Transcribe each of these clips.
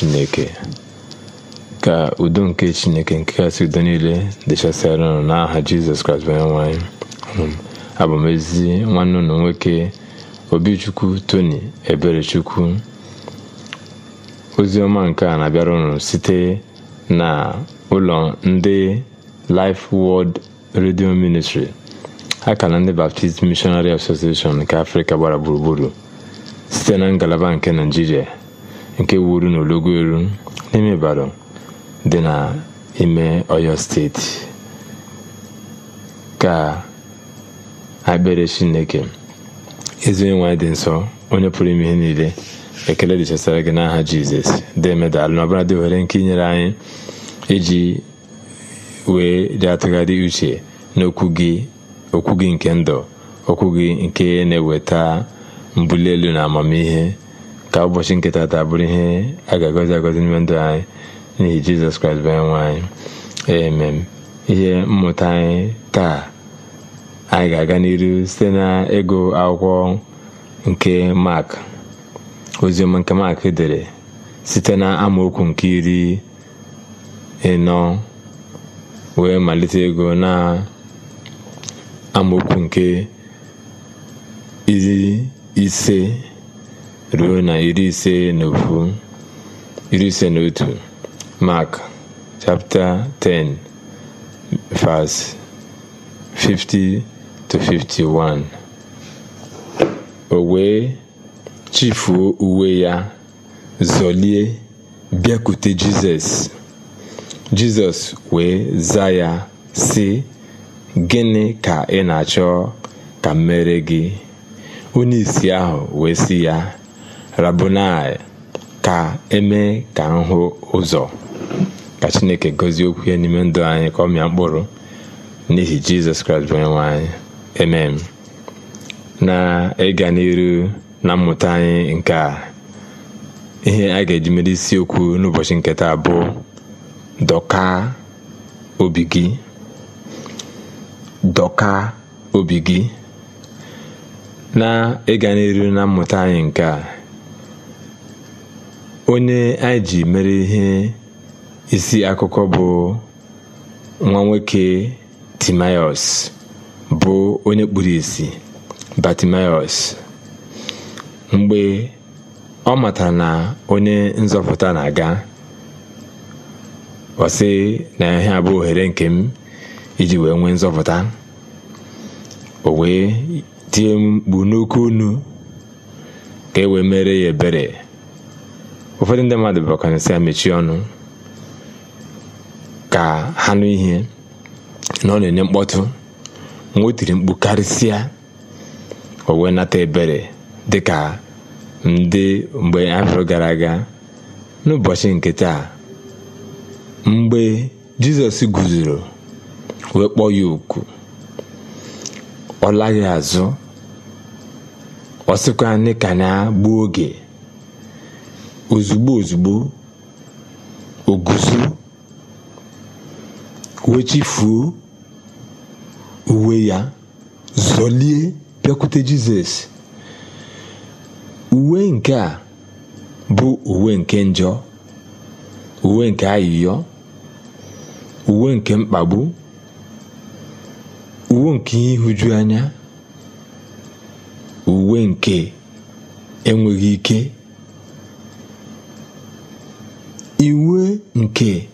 chineke ka udo nke chineke nke kasị udo niile dịchasịara ụnụ n'aha jizọs kraịst onye abụ ezi nwanne ụnụ nwoke obi obichukwu tony eberechukwu ozi ọma nke a na-abịara ụnụ site na ụlọ ndị life world radio ministry na ndị baptist missionary association nke afrịka gbara gburugburu site na ngalaba nke naijiria nke wuru n'ologo eru n'ime Ibadan dị n'ime Ọyọ steeti ka akpere Chineke ezi onye nwanyị dị nsọ onye pụrụ ime ihe niile ekele dị chesara gị n'aha Jizọs dị medalụ na dị ohere nke inyere anyị iji wee dị atụgharị uche n'okwu gị gị nke ndụ okwu gị nke na-eweta mbuli elu na amamihe ka ụbọchị nke taa bụrụ ihe a ga-agọzi agọzi n'ime ndụ anyị n'ihi jizọs kraịst bụ nwa anyị emem ihe mmụta anyị taa anyị ga-aga n'iru site na ego akwụkwọ nke mak oziọma nke mak dere site na amaokwu nke iri ịnọ wee malite ego na amaokwu nke iri ise ruo na iri ise na iri ise na otu mark 10 50 51 o wee chifuo uwe ya zọlie bịakwute jizọs jizọs wee za ya si gịnị ka ị na-achọ ka m mere gị onye isi ahụ wee si ya rabonai ka eme ka nhụ ụzọ ka chineke gozie okwu ya n'ime ndụ anyị ka ọ mịa mkpụrụ n'ihi jizọs kraịst bụ onyenwe anyị emem na ịga n'iru na mmụta anyị nke a ihe a ga-eji mere isiokwu n'ụbọchị nketa bụ dọka obi gị dọka obi gị na ịga n'iru na mmụta anyị nke a onye anyị ji mere ihe isi akụkọ bụ nwa nwoke bụ onye kpuru isi Bartimaeus mgbe ọ matara na onye nzọpụta na-aga ọsị na ihe abụ ohere nke m iji wee nwee nzọpụta o wee tie mkpu n'oke unu ka e wee mere ya ebere ụfọdụ ndị mmadụ bụkwana si ya mechie ọnụ ka ha nụ ihe na ọ na-enye mkpọtụ nwa tiri mkpu karịsịa o wee nata ebere dịka ndị mgbe afọ gara aga n'ụbọchị nke taa mgbe jizọs guzoro wee kpọọ ya oku ọ laghị azụ ọ sịkwa anyị ka na gbuo oge ozugbo ozugbo oguzo wechifuo uwe ya zọlie bịakwute jizọs uwe nke a bụ uwe nke njọ uwe nke ayịyọ uwe nke mkpagbu uwe nke ihuju anya uwe nke enweghị ike nke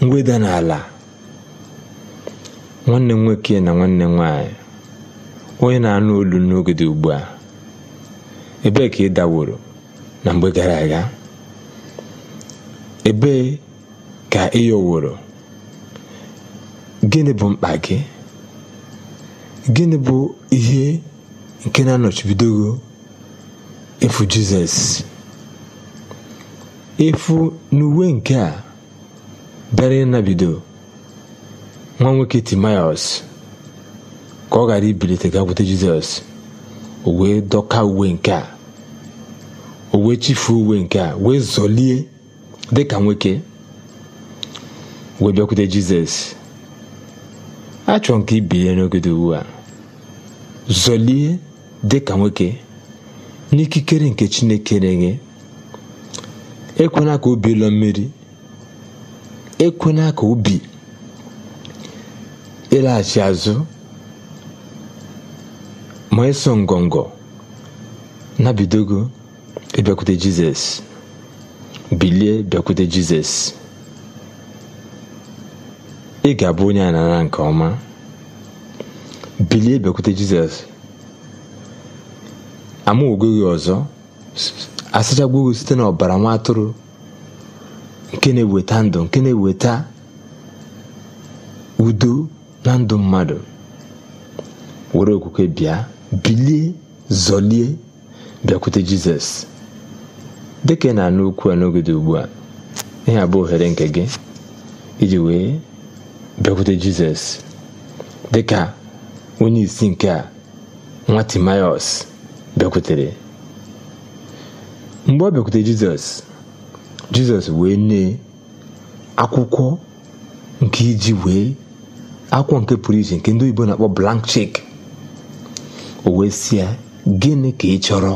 mweda n'ala nwanne m nwoke na nwanne m nwanyị onye na-anụ olu n'oge dị ugbu a ebee ka ị daworo na mgbe gara aga ebee ka ị yọworo gịnị bụ mkpa gị gịnị bụ ihe nke na-anọchibidogo efu jizọs efu n'uwe nke a bịara ịnabido nwa nwoke Timaeus ka ọ ghara ibilite gakwute Jizọs o wee dọka uwe nke a o wee chifuo uwe nke a wee zọlie dịka nwoke wee bịakwute Jizọs achọrọ nke ibilie n'ogede ugbu a zọlie dịka nwoke n'ikikere nke Chineke na-enye ekwela ka obi bilọ mmiri ekwela ka obi ịlaghachi azụ ma eso ngọngọ nabidogo ịbịakwute jizọs bilie bịakwute jizọs ị ga-abụ onye a nara nke ọma bilie bịakwute jizọs amaogo ọzọ asachagbuo gị site n'ọbara nwa atụrụ nke na-eweta ndụ nke na-eweta udo na ndụ mmadụ were okwukwe bịa bilie zọlie bịakwute jizọs dịka ị na-anụ okwu a n'oge dị ugbu a ihe abụ ohere nke gị iji wee bịakwute jizọs dịka onye isi nke a nwa timaeus bịakwutere mgbe ọ bịakwute jizọs jizọs wee nye akwụkwọ nke iji wee akwụkwọ nke pụrụ iche nke ndị oyibo na-akpọ blank chek o wee si ya gịnị ka ị chọrọ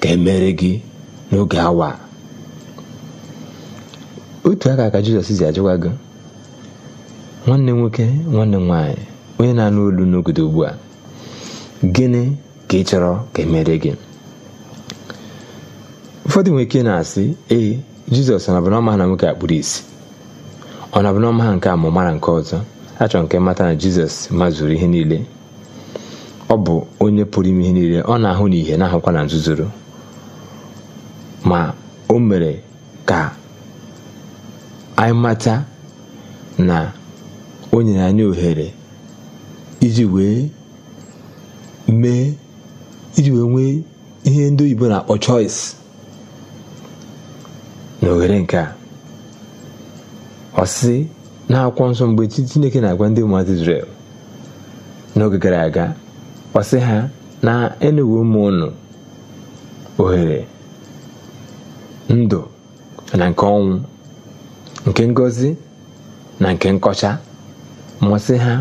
ka emere gị n'oge awa otu aka ka jizọs zi ajụwa gị nwanne nwoke nwanne nwanyị nwaanyị onye na-anụ olu n'ogodo ugbu a gịnị ka ị chọrọ ka emere gị ụfọdụ nwere ike na-asị ee jizọs ọ nabụnọma na nwoke akpụrụ isi ọ nabụnọma ha nke a ọma mara nke ọzọ achọrọ nke mata na jizọs mazuru ihe niile ọ bụ onye pụrụ ime ihe niile ọ na-ahụ na ihe na-ahụkwa na nzuzoro ma o mere ka anyị mata na o nyere anyị ohere iji wee mee iji wee nwee ihe ndị oyibo na-akpọ choice na nke a ọsị akwụkwọ nsọ mgbe chineke na-agwa ndị ụmụazị Izrel n'oge gara aga ọsị ha na enewe ụmụ ụnụ ohere ndụ na nke ọnwụ nke ngozi na nke nkọcha masị ha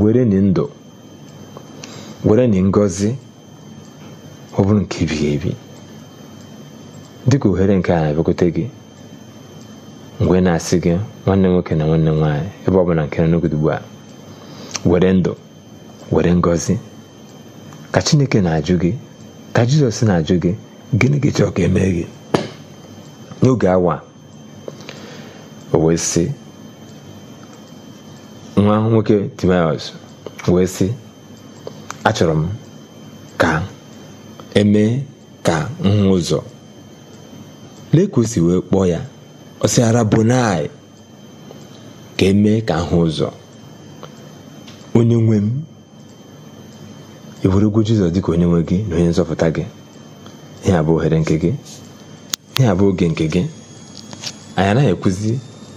were ni ndụ were ni ngozi ọ bụrụ nke ebighị ebi dịka ohere nke a na gị mgbe na-asị gị nwanne nwoke na nwanne nwaanyị ebe ọ bụla nke n'ogodo ugbu a were ndụ were ngọzi ka chineke na-ajụ gị ka jizọs na-ajụ gị gịnị gị chọọ ka eme gị n'oge awa o wee sị nwa nwoke timaeus wee sị achọrọ m ka emee ka nhụ ụzọ lee ka o si wee kpọọ ya ọsịara bonai ka emee ka ahụ ụzọ onye nwe m iwerego jizọs dịka onye nwe gị na onye nzọpụta gị ihe abụ ohere nke gị ihe abụ oge nke gị anyị anaghị ekwuzi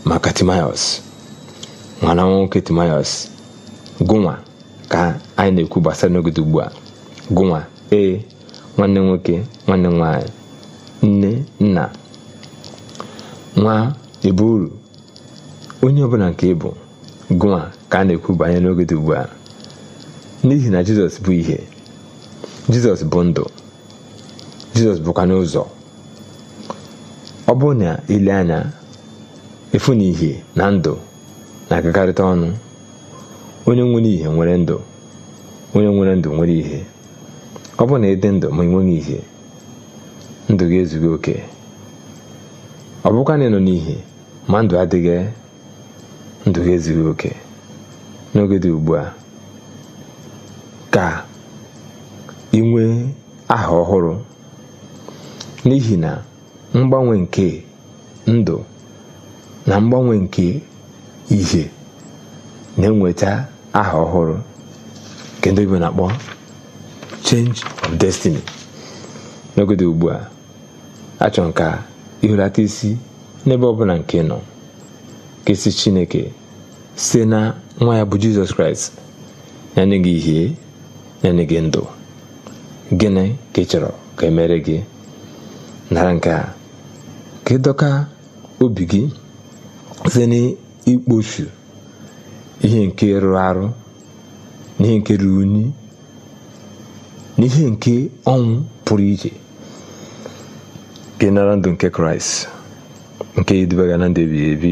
maka timaios nwana nwoke timaios gụnwa ka anyị na-ekwu gbasara n'ogede ugbu a gụnwa ee nwanne nwoke nwanne nwanyị, nne nna nwa ebe uru onye ọbụla nke ịbụ gụnwa ka a na-ekwu banyere n'oge dị ugbu a n'ihi na jizọs bụ ihe jizọs bụ ndụ jizọs bụkwa n'ụzọ ọ bụrụ na ile anya efu na ihe na ndụ na-agagharịta ọnụ onye nwere ihe nwere ndụ onye nwere ndụ nwere ihe ọ bụrụ na ịdị ndụ ma ị nweghị ihe ndụ ga ezughị oke ọ bụkwa na n'ihi ma ndụ adịghị ndụ ha ezughị oke n'oge dị ugbu a ka ị aha ọhụrụ n'ihi na mgbanwe nke ndụ na mgbanwe nke ihe na-enweta aha ọhụrụ nke ndị na-akpọ change of destiny n'oge dị ugbu a achọ nke a ihulata isi n'ebe ọbụla nke nọ ka si chineke site na nwa ya bụ jizọs kraịst nye gị ihe nye gị ndụ gịnị ka ị chọrọ ka emere gị nara nke a ka ịdọka obi gị site n'ikpochu ihe nke rụrụ arụ n'ihe nke ruru unyi n'ihe nke ọnwụ pụrụ iche ka nara ndụ nke kraịst nke idubaga na ndụ ebighị ebi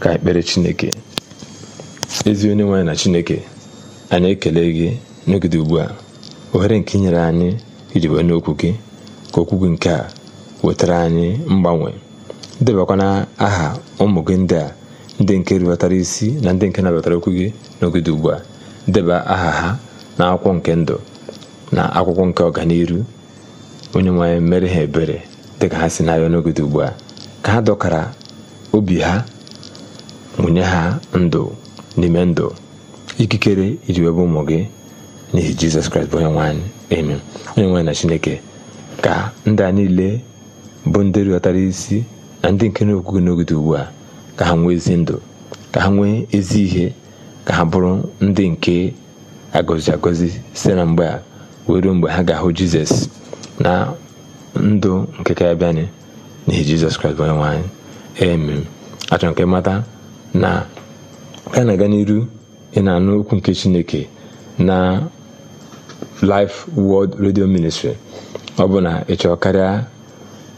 ka ekpere chineke ezi onye nwaanyị na chineke anyị ekele gị n'ogide ugbu a ohere nke inyere anyị iji wee n'okwu gị ka okwu gị nke a wetara anyị mgbanwe debakwana aha ụmụ gị ndị a ndị nke rịbatara isi na ndị nke nabatara okwu gị n'ogide ugbu a deba aha ha na akwụkwọ nke ndụ na akwụkwọ nke ọganiru onye nwe mere ha ebere dịka ha si n'ahịa arịọ ugbu a ka ha dọkara obi ha nwunye ha ndụ n'ime ndụ ikikere iji webe ụmụ gị n'ihi jizọs kraịst bụ onye nwanyị anyị onye nwanyị na chineke ka ndị a niile bụ ndị rịọtara isi na ndị nke n'okwu gị ugbu a ka ha nwee ezi ndụ ka ha nwee ezi ihe ka ha bụrụ ndị nke agọzi agọzi site na mgbe a wee mgbe ha ga-ahụ jizọs na ndụ nke ka na n'ihi jizọs kraịst bụ onye nwe anyị emem achọrọ nke mata na ka na-aga n'iru ị na-anụ okwu nke chineke na Life World Radio Ministry ọ bụ na ị karịa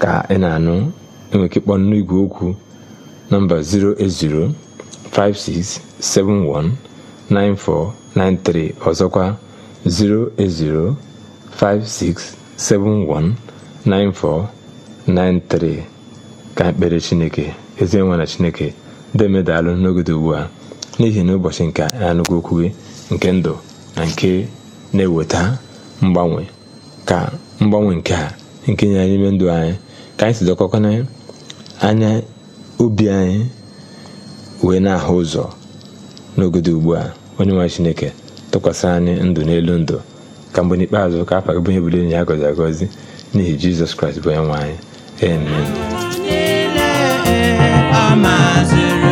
ka ị na-anụ enwere ike n'igwe okwu nọmba 08056719493 ọzọkwa 08056 72249493 ka ekpere chineke ezi nwa na chineke demedalụ n'ogede ugbu a n'ihi na ụbọchị nke anụgwụ okwu nke ndụ na nke na-eweta mgbanwe ka mgbanwe nke a nke nye anyị ndụ anyị ka anyị si sidokọkwana anya obi anyị wee na-ahụ ụzọ n'ogede ugbu a onye nwa chineke tụkwasị anyị ndụ n'elu ndụ ka mgbe n'ikpeazụ ka afa bụ ihe budo enyi ya gọzi agọzi n'ihi jizọs kraịst bụ onye nwe anyị amen